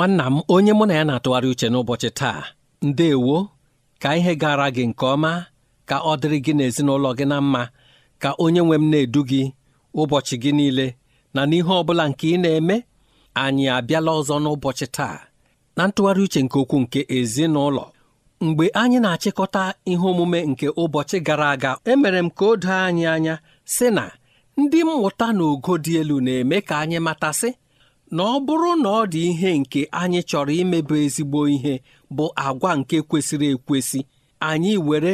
nwanna m onye mụ na ya na-atụgharị uche n'ụbọchị taa ndeewo ka ihe gara gị nke ọma ka ọ dịrị gị na ezinụlọ gị na mma ka onye nwe m na-edu gị ụbọchị gị niile na n'ihe ọ bụla nke ị na-eme anyị abịala ọzọ n'ụbọchị taa na ntụgharị uche nke okwu nke ezinụlọ mgbe anyị na-achịkọta ihe omume nke ụbọchị gara aga emere m ka o doo anyị anya sị na ndị mmụta na ogo dị elu na-eme ka anyị matasị na ọ bụrụ na ọ dị ihe nke anyị chọrọ imebi ezigbo ihe bụ agwa nke kwesịrị ekwesị anyị were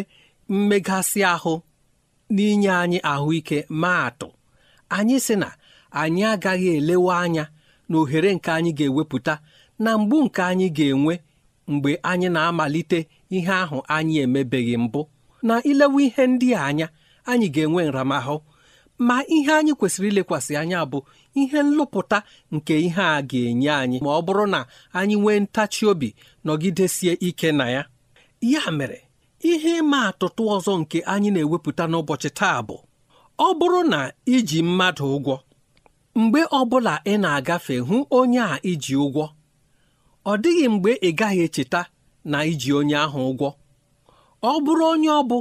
mmegasị ahụ n'inye anyị ahụike ma atụ anyị sị na anyị agaghị elewe anya na ohere nke anyị ga-ewepụta na mgbu nke anyị ga-enwe mgbe anyị na-amalite ihe ahụ anyị emebeghị mbụ na ilewe ihe ndị a anya anyị ga-enwe nramahụ ma ihe anyị kwesịrị ilekwasị anya bụ ihe nlụpụta nke ihe a ga-enye anyị ma ọ bụrụ na anyị nwee ntachi obi nọgidesie ike na ya ya mere ihe ịma atụtụ ọzọ nke anyị na-ewepụta n'ụbọchị taa bụ ọ bụrụ na iji mmadụ ụgwọ mgbe ọbụla ị na-agafe hụ onye a iji ụgwọ ọ dịghị mgbe ị gaghị echeta na iji onye ahụ ụgwọ ọ bụrụ onye ọ bụ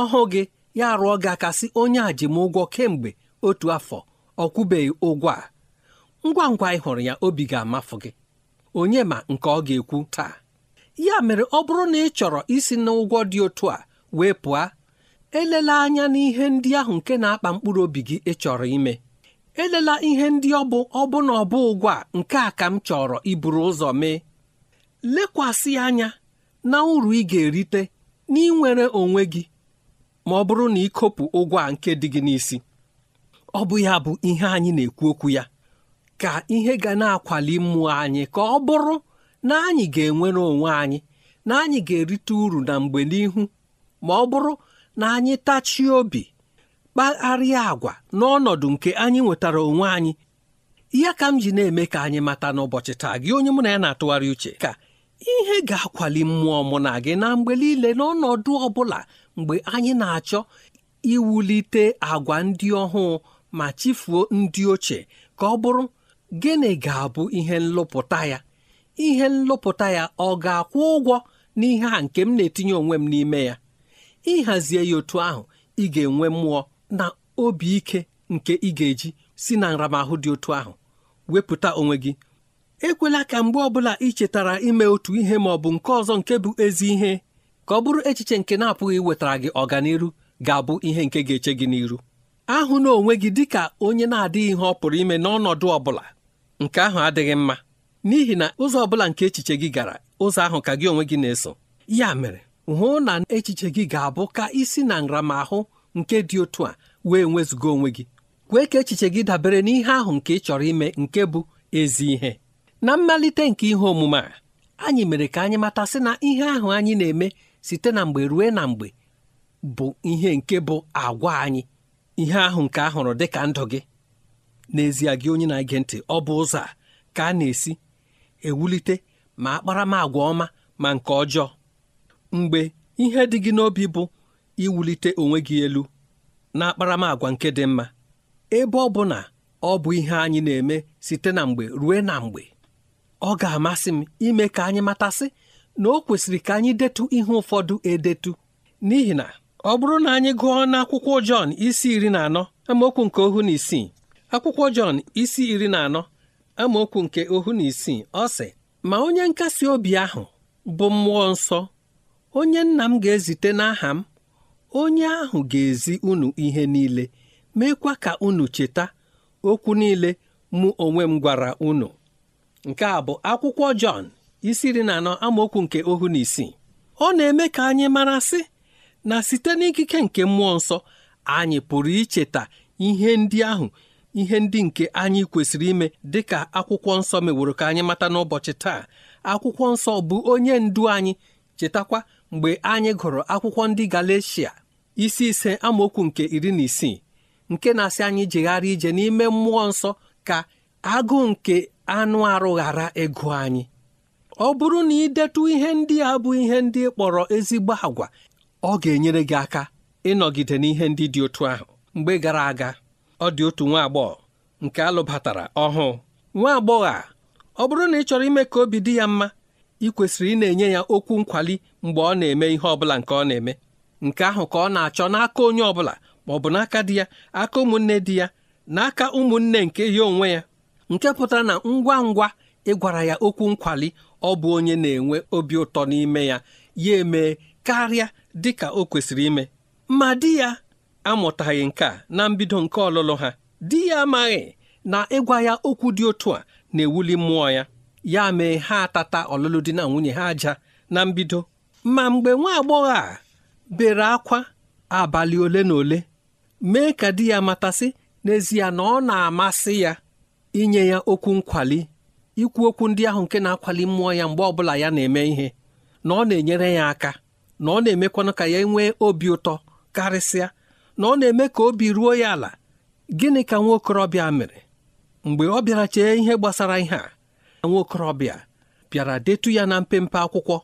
ọhụụ gị ya rụọ gị aka sị onye a ji m ụgwọ kemgbe otu afọ ọ kwụbeghị ụgwọ a ngwa ngwa ị hụrụ ya obi ga amafu gị onye ma nke ọ ga-ekwu taa ya mere ọ bụrụ na ị chọrọ isi n'ụgwọ dị otu a wee pụọ elela anya n'ihe ndị ahụ nke na-akpa mkpụrụ obi gị ịchọrọ ime elela ihe ndị ọ bụ ọ ọbụ ụgwọ a nke a ka m chọrọ iburu ụzọ mee lekwasị anya na uru ị ga-erite n'inwere onwe gị ma ọ bụrụ na ikopụ ụgwọ a nke dị gị n'isi ọ bụ ya bụ ihe anyị na-ekwu okwu ya ka ihe ga na-akwali mmụọ anyị ka ọ bụrụ na anyị ga-enwere onwe anyị na anyị ga-erite uru na mgbe n'ihu ma ọ bụrụ na anyị tachie obi kpagharịa agwa n'ọnọdụ nke anyị nwetara onwe anyị ya ka m ji na-eme ka anyị mata n'ụbọchị taa gị onye mụ na ya na-atụgharị uche ka ihe ga-akwali mmụọ mụ na gị na mgbe niile n'ọnọdụ ọ bụla mgbe anyị na-achọ iwulite agwa ndị ọhụụ ma chefuo ndị ochie ka ọ bụrụ gịnị ga-abụ ihe nlụpụta ya ihe nlụpụta ya ọ ga-akwụ ụgwọ n'ihe a nke m na-etinye onwe m n'ime ya ịhazie ya otu ahụ ị ga-enwe mmụọ na obi ike nke ị ga-eji si na nramahụ dị otu ahụ wepụta onwe gị ekwela ka mgbe ọbụla ị chetara ime otu ihe ma ọ bụ nke ọzọ nke bụ ezi ihe ka ọ bụrụ echiche nke na-apụghị wetara gị ọganihu ga-abụ ihe nke ga-eche gị n'iru ahụ na onwe gị dịka onye na-adịghị ihe ọ pụrụ ime n'ọnọdụ ọ bụla nke ahụ adịghị mma n'ihi na ụzọ ọ bụla nke echiche gị gara ụzọ ahụ ka gị onwe gị na-eso ya mere hụ na echiche gị ga-abụ ka isi na nramahụ nke dị otu a wee nwezuga onwe gị kwee ka echiche gị dabere n'ihe ahụ nke ị chọrọ ime nke bụ ezi ihe na mmalite nke ihe omume a anyị mere ka anyị matasị na ihe ahụ anyị na-eme site na mgbe ruo na mgbe bụ ihe nke bụ agwa anyị ihe ahụ nke ahụrụ dị ka ndụ gị n'ezie gị onye na-ege ntị ọ bụ ụzọ a ka a na-esi ewulite ma akparamagwa ọma ma nke ọjọọ mgbe ihe dị gị n'obi bụ iwulite onwe gị elu na akparamagwa nke dị mma ebe ọ bụ na ọ bụ ihe anyị na-eme site na mgbe ruo na mgbe ọ ga-amasị m ime ka anyị matasị na o kwesịrị ka anyị detu ihe ụfọdụ edetu n'ihi na ọ bụrụ na anyị gụọ n'akwụkwọ Jọn isi iri na anọ amaokwu nke ohu na isii akwụkwọ Jọn isi iri na anọ amaokwu nke ohu na isii ọ sị ma onye nkasi obi ahụ bụ mmụọ nsọ onye nna m ga-ezite n'aha m onye ahụ ga-ezi unu ihe niile meekwa ka unu cheta okwu niile mụ onwe m gwara unu nke a bụ akwụkwọ Jọn isi iri na anọ amaokwu nke ohu na isii ọ na-eme ka anyị mara sị na site n'ikike nke mmụọ nsọ anyị pụrụ icheta ihe ndị ahụ ihe ndị nke anyị kwesịrị ime dịka akwụkwọ nsọ meworo ka anyị mata n'ụbọchị taa akwụkwọ nsọ bụ onye ndu anyị chetakwa mgbe anyị gụrụ akwụkwọ ndị Galeshia isi ise amaokwu nke iri na isii nke na-asị anyị jegharị ije n'ime mmụọ nsọ ka agụụ nke anụ arụ ghara ịgụ anyị ọ bụrụ na ị detụ ihe ndị a bụ ihe ndị kpọrọ ezigbo agwa ọ ga-enyere gị aka ịnọgide n'ihe ndị dị otu ahụ mgbe gara aga ọ dị otu nwa agbọghọ nke alụbatara ọhụụ nwa agbọghọ a ọ bụrụ na ị chọrọ ime ka obi dị ya mma ị kwesịrị ị na-enye ya okwu nkwali mgbe ọ na-eme ihe ọ bụla nke ọ na-eme nke ahụ ka ọ na-achọ n'aka onye ọbụla ma ọ bụ n'aka di ya aka ụmụnne di ya n'aka ụmụnne nke ya onwe ya nke pụtara na ngwa ngwa ịgwara ya okwu nkwali ọ bụ onye na-enwe obi ụtọ n'ime ya ya emee karịa dị ka o kwesịrị ime ma di ya amụtaghị nke a na mbido nke ọlụlụ ha di ya amaghị na ịgwa ya okwu dị otu a na-ewuli mmụọ ya ya mee ha atata ọlụlụ di na nwunye ha aja na mbido ma mgbe nwa agbọghọ a bere akwa abalị ole na ole mee ka di ya matasị n'ezie na ọ na-amasị ya inye ya okwu nkwali ikwu okwu ndị ahụ nke na-akwali mmụọ ya mgbe ọbụla ya na-eme ihe na ọ na-enyere ya aka na ọ na-emekwanụ ka ya nwee obi ụtọ karịsịa na ọ na-eme ka obi ruo ya ala gịnị ka nwa okorobịa mere mgbe ọ bịara chee ihe gbasara ihe a nwa okorobịa bịara detu ya na mpempe akwụkwọ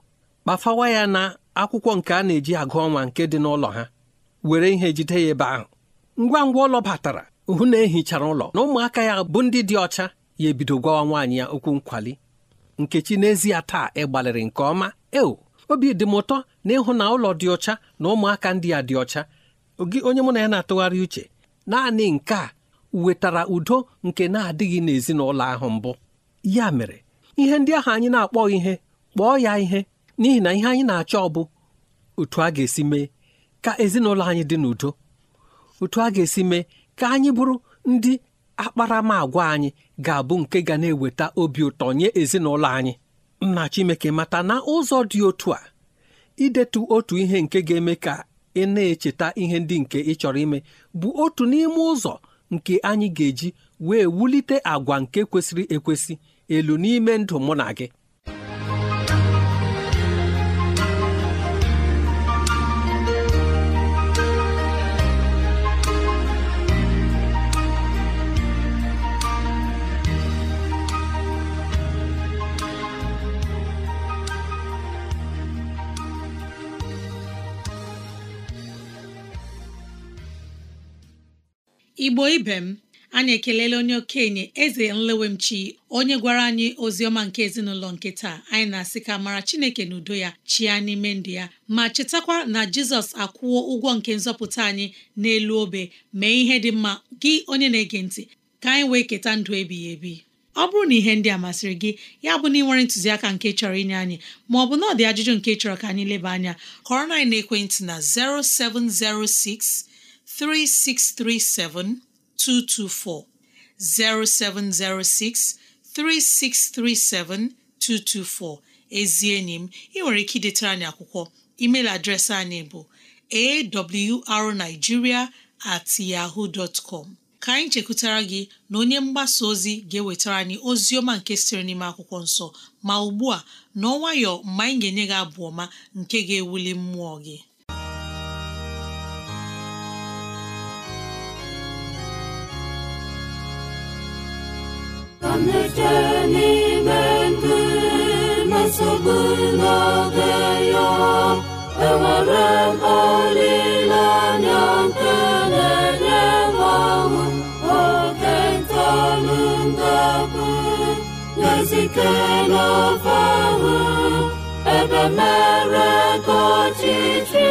kpafawa ya na akwụkwọ nke a na-eji agụ ọnwa nke dị n'ụlọ ha were ihe jide ya ebe ahụ ngwa ngwa ụlọ batara hụ na ehichara ụlọ na ụmụaka ya bụ ndị dị ọcha ya ebido gwawa nwaanyị ya okwu nkwali nkechi n'ezie taa ị gbalịrị nke ọma eo obi dị m ụtọ na ịhụ na ụlọ dị ọcha na ụmụaka ndị a dị ọcha onye mụ na ya na-atụgharị uche naanị nke a wetara udo nke na-adịghị n'ezinụlọ ahụ mbụ ya mere ihe ndị ahụ anyị na-akpọ ihe kpọọ ya ihe n'ihi na ihe anyị na-achọ bụ otu a ga-esi mee ka ezinụlọ anyị dị n'udo otu a ga-esi mee ka anyị bụrụ ndị akparamagwa anyị ga-abụ nke ga na-eweta obi ụtọ nye ezinụlọ anyị nna Chineke mata na ụzọ dị otu a idetu otu ihe nke ga-eme ka ị na-echeta ihe ndị nke ị chọrọ ime bụ otu n'ime ụzọ nke anyị ga-eji wee wulite agwa nke kwesịrị ekwesị elu n'ime ndụ mụ na gị igbo ibe m anyị ekelela onye okenye eze nlewemchi onye gwara anyị ozi ọma nke ezinụlọ nke taa anyị na-asị ka mara chineke na udo ya chịa n'ime ndụ ya ma chetakwa na jizọs akwụọ ụgwọ nke nzọpụta anyị n'elu obe mee ihe dị mma gị onye na-ege ntị ka anyị wee keta ndụ ebighị ebi ọ bụrụ na ihe ndị a masịrị gị ya bụ na ị nwere ntụziaka nke chọrọ inye anyị ma ọ bụ na ọ dị ajụjụ nke chọrọ ka anyị leba anya kọrọ na ekwentị na 0706 3637224 0706 3637224 ezi enyi m ị nwere ike idetara anyị akwụkwọ email adreesị anyị bụ awrnigeria at yahoo dot ka anyị chekwutara gị na onye mgbasa ozi ga-ewetara anyị ozi ọma nke sịrị n'ime akwụkwọ nsọ ma ugbu a n'ọnwayọ mgbe anyị ga-enye gị abụ ọma nke ga-ewuli mmụọ gị amleteni mendimese bụnabeya enwere m olilanya nke na-enyemanwụ ebe mere ka ọchịchị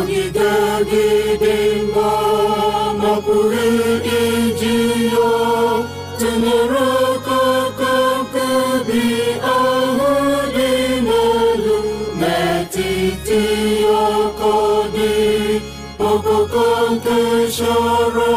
anyị ga-edide mba ma iji ya tụnyere aka aka bi ahụ dị n'elu n'etiti aka dị ọkụkọ nke chọrọ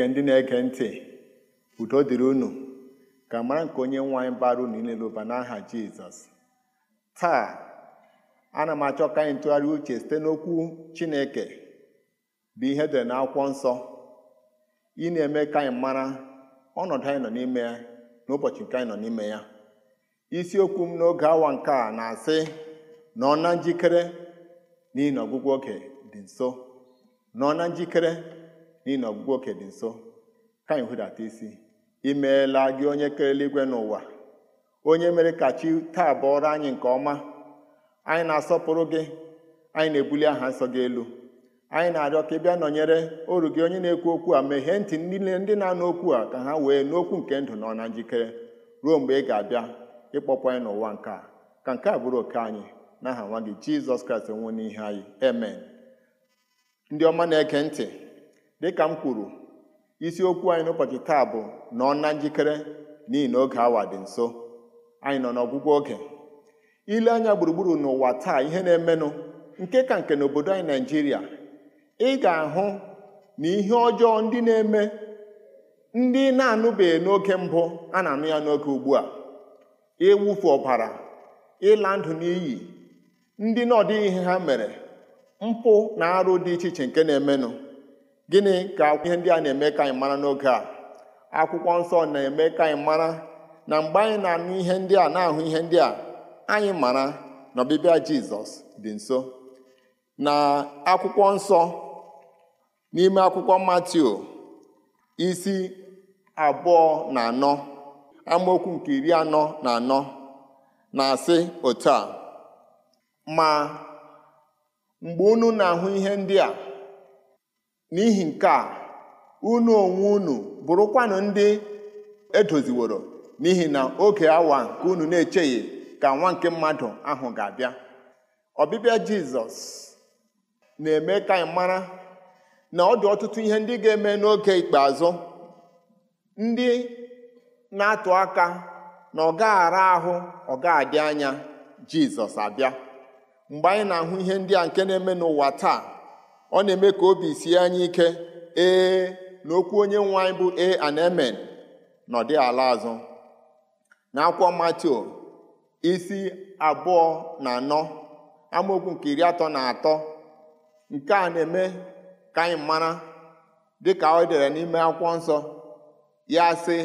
Chineke ndị na-ege ntị udo dịrị unu ka mara nke onye nwe anyị bara unu niile ụba n'aha Jizọs taa ana m achọ ka anyị ntụgharị uche site n'okwu Chineke bụ ihe dị n'akwụkwọ nsọ ị na-eme ka anyị mara ọnọdụ anyị nọ n'ime ya na ụbọchị nke anyị nọ n'ime ya isiokwu m n'oge awa nke a na-asị na ọ na njikere n'ihi na ọgwụgwọ oge dị nso na na njikere n'ihi na ọgwụgwụ oke dị nso ka anyị hụdata isi imeela gị onye kere igwe n'ụwa onye mere ka chi taa bụọrọ anyị nke ọma anyị na-asọpụrụ gị anyị na-ebuli aha nsọ gị elu anyị na-arịọ ka ị bịa nọnyere oru gị onye na-ekwu okwu a meghee ntị niile ndị na-anụ okwu a ka ha wee n'okwu nke ndụ nọ na njikere ruo mgbe ị ga-abịa ịkpọpụ anyị n'ụwa nke a ka nke a bụrụ oke anyị n'aha nwa gị jizọs kraịst nwụ n'ihe anyị amen ndị ọma na-ege ntị dịka m kwuru isiokwu anyị n'ụbọchị taa bụ nọ na njikere n'ihi na oge awa dị nso anyị nọ n'ọgwụgwọ oge ile anya gburugburu n'ụwa taa ihe na-emenụ nke ka nke n'obodo anyị naijiria ị ga-ahụ na ihe ọjọọ ndị na-eme ndị na-anụbeghị n'oge mbụ a na-anụ ya n'oge ugbu a ịwụfu ọbara ịla ndụ n'iyi ndị na ọdịghị ihe ha mere mpụ na arụ dị iche iche nke na-emenụ gịnị ka ihe ndị a na-eme ka anyị mara n'oge a akwụkwọ nsọ na-eme ka anyị mara na mgbe anyị na-anụ ihe ndị a na-ahụ ihe ndị a anyị mara na ọbịbịa jizọs dị nso na akwụkwọ nsọ n'ime akwụkwọ Matio, isi abụọ na anọ amaokwu nke iri anọ na anọ na-asị otu a ma mgbe unu na-ahụ ihe ndị a n'ihi nke a unu onwe unu bụrụkwanụ ndị edoziworo n'ihi na oge awa nke unu na echeghi ka nwa nke mmadụ ahụ ga-abịa ọbịbịa jizọs na-eme ka anyị mara na ọ dị ọtụtụ ihe ndị ga-eme n'oge ikpeazụ ndị na-atụ aka na ọ gaghara ahụ ọ ga anya jizọs abịa mgbe anyị na-ahụ ihe ndị a nke na-eme n'ụwa taa ọ na-eme ka obi sie anyị ike ee na okwu onye nwe anyị bụ e and mn ala azụ na akwụkwọ matio isi abụọ na anọ amaokwu nke iri atọ na atọ nke a na-eme ka anyị mara dịka o dere n'ime akwụkwọ nsọ ya sị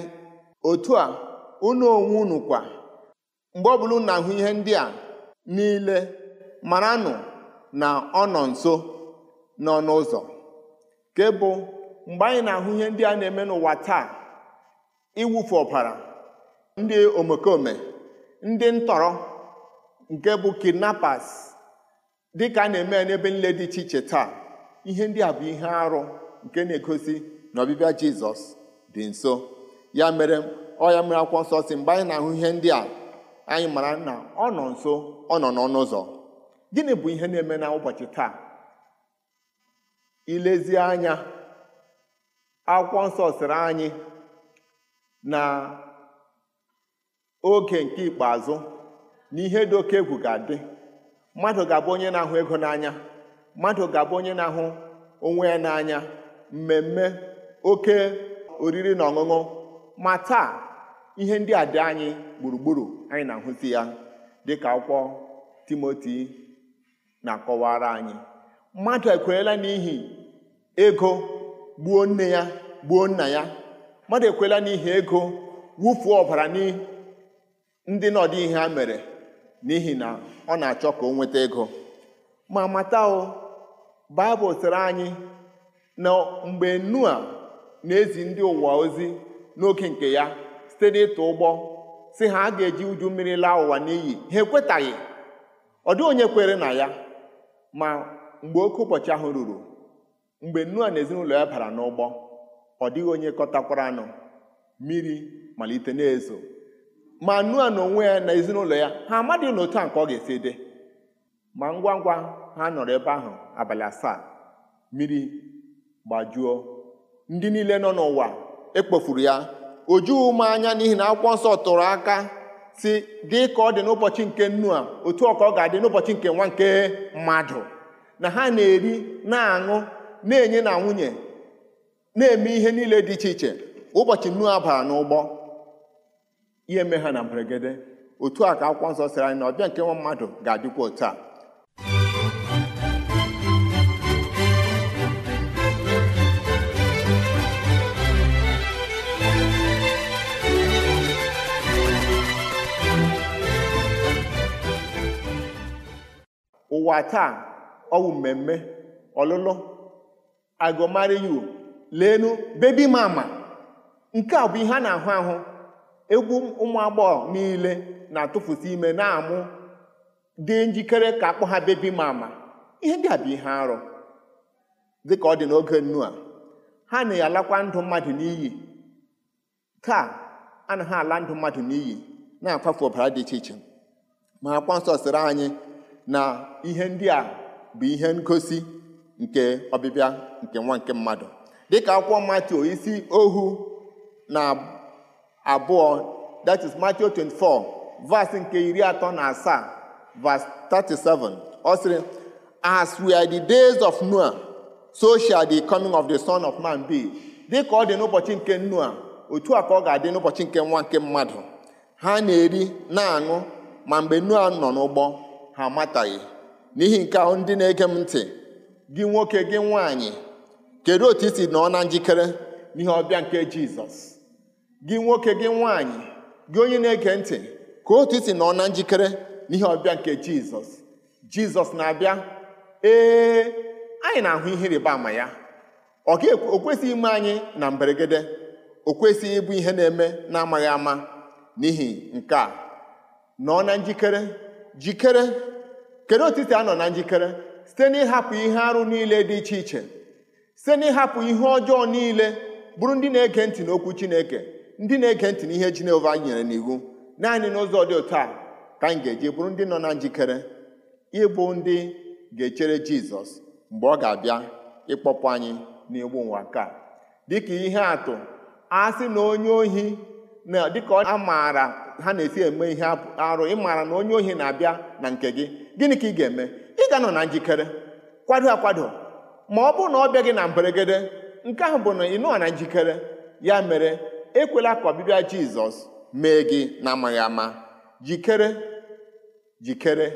otu a unu onwe unu kwa mgbe ọbụla na-ahụ ihe ndị a niile maranụ na ọ nọ nso n'ọnụ ụzọ nke bụ mgbe anyị na-ahụ ihe ndị a na-eme n'ụwa taa iwufu ọbara ndị omekome ndị ntọrọ nke bụ kidnappers dị ka a na-eme n'ebe nle dị iche iche taa ihe ndị a bụ ihe arụ nke na-egosi na ọbịbịa jizọs dị nso ya mere ọ ya mere akwụkwọ nsọ si mgbe anyị na-ahụ ihe ndị a anyị mara na ọ nọ nso ọ nọ n'ọnụ ụzọ gịnị bụ ihe na-eme na ụbọchị taa ilezi anya akwụkwọ nsọ sịrị anyị na oge nke ikpeazụ na ihe dị oke egwu ga-adị mmadụ ga-abụ onye na-ahụ ego n'anya mmadụ ga-abụ onye na-ahụ onwe ya n'anya mmemme oke oriri na ọṅụṅụ ma taa ihe ndị a dị anyị gburugburu anyị na-ahụzi ya dị ka akwụkwọ Timoti na-akọwara anyị mmadụ ekwenyela n'ihi ego gbuo nne ya gbuo nna ya mmadụ ekwela n'ihi ego wụfuo ọbara ndị n'ọdị ihe ha mere n'ihi na ọ na-achọ ka o nweta ego ma mata o baịbụl sịrị anyị na mgbe nua na-ezi ndị ụwa ozi n'oge nke ya site n'ịtụ ụgbọ si ha a ga-eji uju mmiri laa ụwa n'iyi ha ekwetaghị ọ dịghị onye kwere na ya ma mgbe oke ụbọchị ahụ ruru mgbe Noa na ezinụlọ ya bara n'ụgbọ ọ dịghị onye kọtakwara anụ mmiri malite na-ezo ma Noa na onwe ya na ezinụlọ ya ha amadịghị na a nke ọ ga-esi dị ma ngwa ngwa ha nọrọ ebe ahụ abalị asaa mmiri gbajuo ndị niile nọ n'ụwa ekpofuru ya o jughị anya n'ihi na akwụkwọ nsọ tụrụ aka si dị ka ọ dị n'ụbọchị nke Noa otu ọ ka ọ ga-adị n'ụbọchị nke nwa nke mmadụ na ha na-eri na-aṅụ na-enye na nwunye na-eme ihe niile dị iche iche ụbọchị Noa bara n'ụgbọ ihe mee ha na mberede otu a ka akwụkwọ nsọ sịrị anyị na ọbịa nke nwa mmadụ ga-adịkwa otu a ụwa taa ọwụ mmemme ọlụlụ agụmariyu leenu bebi mama nke a bụ ihe a na-ahụ ahụ egwu ụmụ agbọghọ niile na-atụfusi ime na-amụ dị njikere ka akpọ ha bebi mama ihe dị a ihe arụ ka ọ dị n'oge nnu a ha na-alakwa ndụ mmadụ n'iyi ka taa ha ala ndụ mmadụ n'iyi na-akwafu ọbara dị iche iche ma akwa nsọ sịrị anyị na ihe ndị a bụ ihe ngosi nke ọbịbịa nke nwa nke mmadụ dịka akwụkwọ Matthew isi ohu na abụọ that is Matthew 24 verse nke iri atọ na asaa verse 37 ọ sịrị as are the days of Noah so shall the coming of the son of man be dịka ọ dị n'ụbọchị nke Noah otu a ka ọ ga-adị n'ụbọchị nke nwa nke mmadụ ha na-eri na-aṅụ ma mgbe Noah nọ n'ụgbọ ha amataghị n'ihi nke ahụ ndị na-ege m ntị gị nwoke gị nwaanyị kedu otu isi nọ na njikere n'ihe ọbịa nke jizọs gị nwoke gị nwaanyị gị onye na-ege ntị ka otu isi nọ na njikere n'ihe ọbịa nke jizọs jizọs na-abịa ee anyị na-ahụ ihe rịba ama ya ọ kwesịghị ime anyị na mberede o kwesịghị ịbụ ihe na-eme na-amaghị ama n'ihi nke a nọ na njikere jikere kedu otiti a nọ na njikere site n'ịhapụ ihe arụ niile dị iche iche site n'ịhapụ ihe ọjọọ niile bụrụ ndị na-ege ntị n'okwu Chineke ndị na-ege ntị n'ihe Jehova nyere n'iwu naanị n'ụzọ dị otu a ka anyị ga-eji bụrụ ndị nọ na njikere ịbụ ndị ga-echere Jizọs mgbe ọ ga-abịa ịkpọpụ anyị n'egbu ụwa ka dịka ihe atụ a na onye ohi na dịka ọ maara ha na-esi eme ihe arụ ịmara na onye ohi na-abịa na nke gị gịnị ka ị ga-eme ị ga-anọ na njikere kwado akwado ma ọ bụrụ na ọ bịa gị na mberegede nke ahụ bụ na ị nọọ na njikere ya mere ekwela ka ọbịbịa jizọs mee gị na-amaghị ama jikere jikere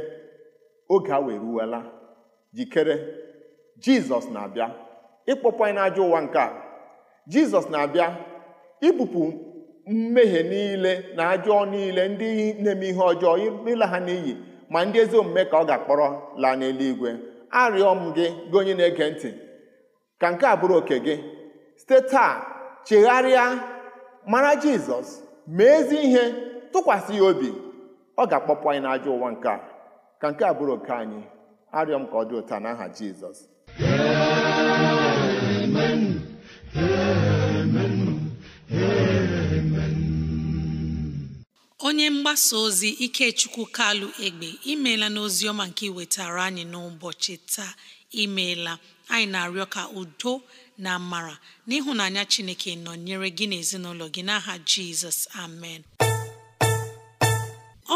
oge a weruwela jikere jizọs na-abịa ịkpọpụ anyị n'ajọ ụwa nke a jizọs na-abịa ibupụ mmehie niile na ajọ niile ndị na-eme ihe ọjọọ ịla ha n'iyi ma ndị ezi omume ka ọ ga-akpọrọ laa n'eluigwe arịọ m gị gị onye na-ege ntị ka nke a bụrụ oke gị site taa chegharịa mara jizọs mee ezi ihe tụkwasị ya obi ọ ga-akpọpụ anyị n'ajọ ụwa nke a ka nke a bụrụ oke anyị arịọ m ka ọ dị ụtọ aha jizọs Amen. Amen. Amen. onye mgbasa ozi ikechukwu kalụ egbe imeela n'ozi ọma nke iwetara anyị n'ụbọchị taa imeela anyị na-arịọ ka udo na amara n'ịhụnanya chineke nọnyere gị na ezinụlọ gị n'aha jizọs amen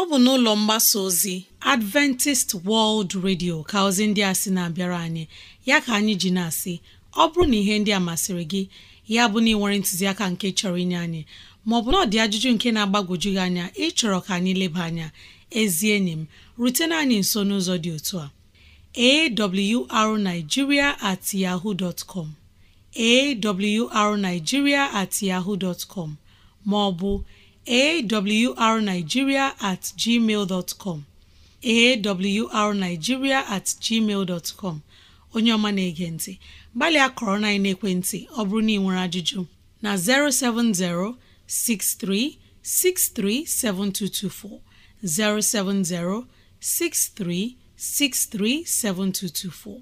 ọ bụ n'ụlọ mgbasa ozi adventist world radio ka ozi ndị a sị na-abịara anyị ya ka anyị ji na-asị ọ bụrụ na ihe ndị a masịrị gị ya bụ na ị nwere ntụziaka nke chọrọ inye anyị maọbụ na ọ dị ajụjụ nke na-agbagwoju gị anya ịchọrọ ka anyị leba anya ezi enyi m rutena anyị nso n'ụzọ dị otu a awrnigeria at yahoo dot com awrnigeria at yahoo dot com maọbụ awrnigeria at gmail dot com awrnigeria at gmail dot com onye ọma na-ege ntị gbalịa kọrọ na ekwentị ọ bụrụ na ị nwere ajụjụ na 070 63637224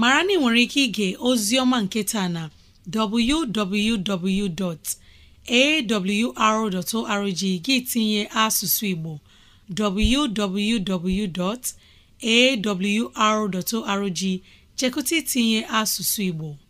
mara na ị nwere ike ige ozi ọma nke taa na www.awr.org gị tinye asụsụ Igbo www.awr.org chekụta itinye asụsụ Igbo